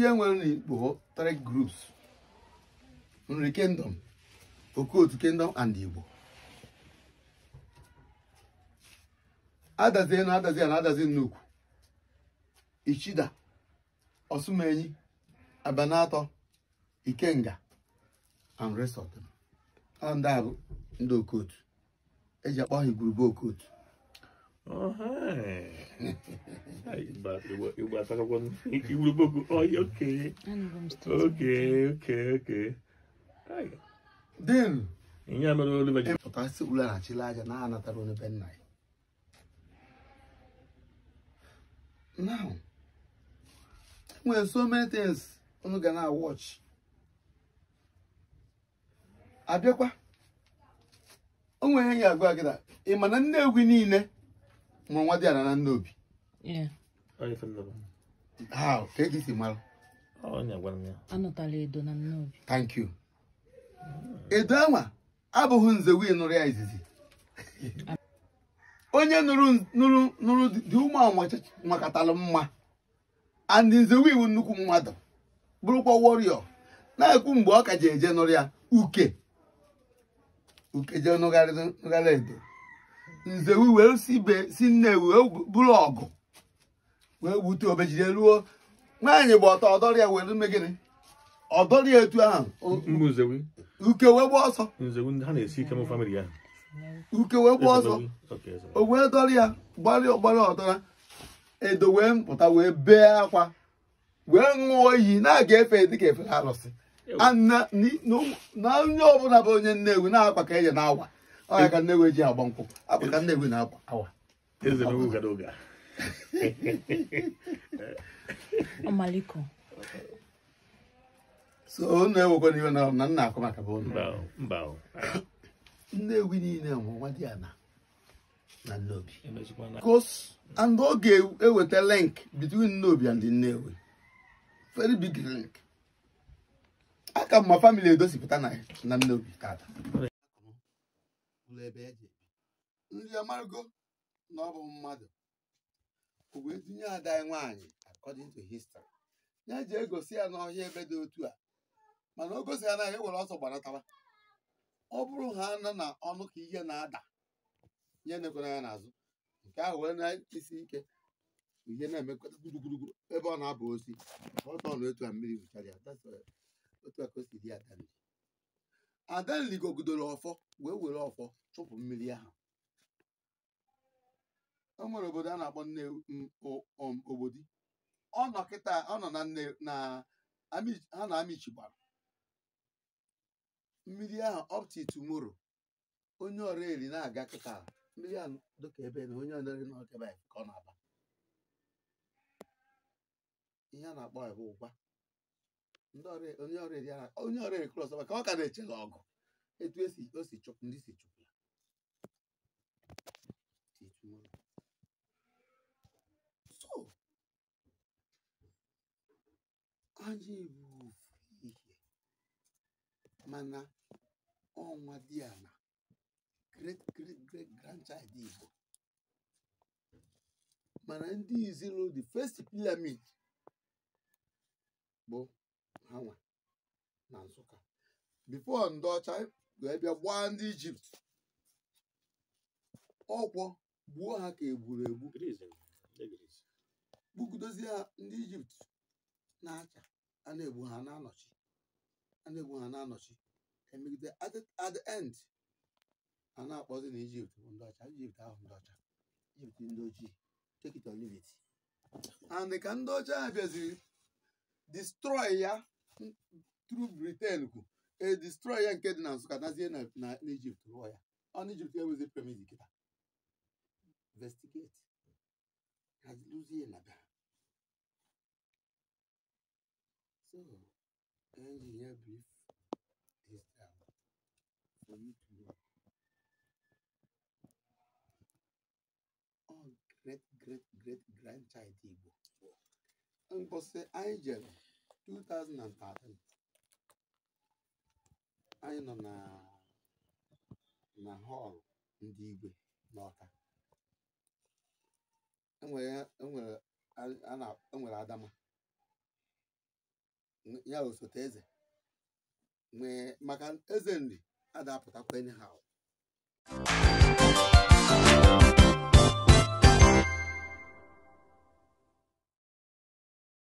ihe nwere n'Igbo three groups Nri Kingdom, Okotu Kingdom and Igbo adazie na adazie na adazi nnukwu Ichida Osumenyi Abanato Ikenga and rest ndị bụ ndị Okotu eji akpọ ha igwurube Okotu Oh, hi. hi, Bob. You, you were talking about Ihe mere Oliver ji. Pụta si aja na onye ben nna ya. Now, so many things ga na watch. Abịakwa. O nwere ya agwa na ị ma na Nnegwu niile nwa nwa a na nna obi edo na nna obi anwa abụghị nze wee nụrụ ya izizi onye nụrụ dị ụmụ ahụ mma and nze iwu nnukwu mmadụ bụrụkwa warrior na-ekwu mgbe ọ ka ji eje nụrụ ya uke uke jee nụgharị edo nzewu wee sibe si nne wee bụrụ ọgụ wee wute obejide ruo nwaanyị gba ọtọ ọdọrị ya were gịnị ọdọrị etu ahụ uke wee gba ọsọ uke wee gba ọsọ o wee dọrị ya gbarịa ọgbarịa ọdọra edo wee pụta wee bee akwa wee ṅụọ iyi na-aga efe dịka efe arụsị na onye ọbụla bụ onye nnewi na-akwa ka eje na-awa ọ ọya ka Nnewi ji agba nkwụ abụ ka Nnewi na-agba awa ọmaliko so unu ewekwa n'iwe na na nna akụ maka bụ Nnewi niile nwụ nwa dị ana na Nnobi e because and ọ ga-eweta link between Nnobi and Nnewi very big link aka mma family edosipụta na Nnobi tata ebe e ji ebi nri amargo na ọ bụ mmadụ o wee tinye ada anyị nwaanyị according to history ya ji egosi ya n'ọhịa ebe dị otu a mana o gosi ya e na ya were ọsọ gbanatawa ọ bụrụ ha nọ na ọnụ ka ihe na-ada nye nekwara ya n'azụ nke ahụ wee na isi ike ihe na-emekọta gburugburu ebe ọ na-aba osi ọtọ na otu a mmiri wụchara ya otu a ka o si dị ya adanligogidoro ọfọ wee were ọfọ chụpụ mmiri ahụ o e nwere obodo a na-akpọ nne obodi um, ọ nọ ọ nọ na nne na ha na gbara. mmiri ahụ ọpti tumoro onye ọrụ eri na-aga kịta mmiri a dọka ebe na onye ọrụ na ka ọ na-aba ihe a na-akpọ ebe ụgwa onye ọrịa kros maka ọ ka na echela ọgụ etu esi o si chụpụ ndị si chụpụ ya so anyị bụ ofu ihe mana ọnwa dị ya na great great great grandchild Igbo mana ndị izuru the first pyramid bụ ha na Nsụka bifo ndị ọcha wee bịa gbaa ndị Ijipt ọkwọ gbuo ha ka egburu egbu kpukudozie ha ndị Ijipt na-acha a na-egbu ha na-anọchi a na-egbu ha na emegide at a na-akpọzi na Ijipt bụ ndị ọcha Ijipt ahụ ndị ọcha Ijipt ndị ojii take and ndị ọcha ha ya through Britain kwu edestroy ya nke dị na Nsụka nazie na Egypt rụọ ya ọ na Egypt enwezi premis kịta investigate kaluzie na bịa so engineer brief this time for you to know all great great great grandchild Igbo mposi anyị jere 2013 anyị nọ na na họlụ ndị igwe n'ọka enwere e e adama ya osote eze nwee maka eze nri a enyi ha anyhow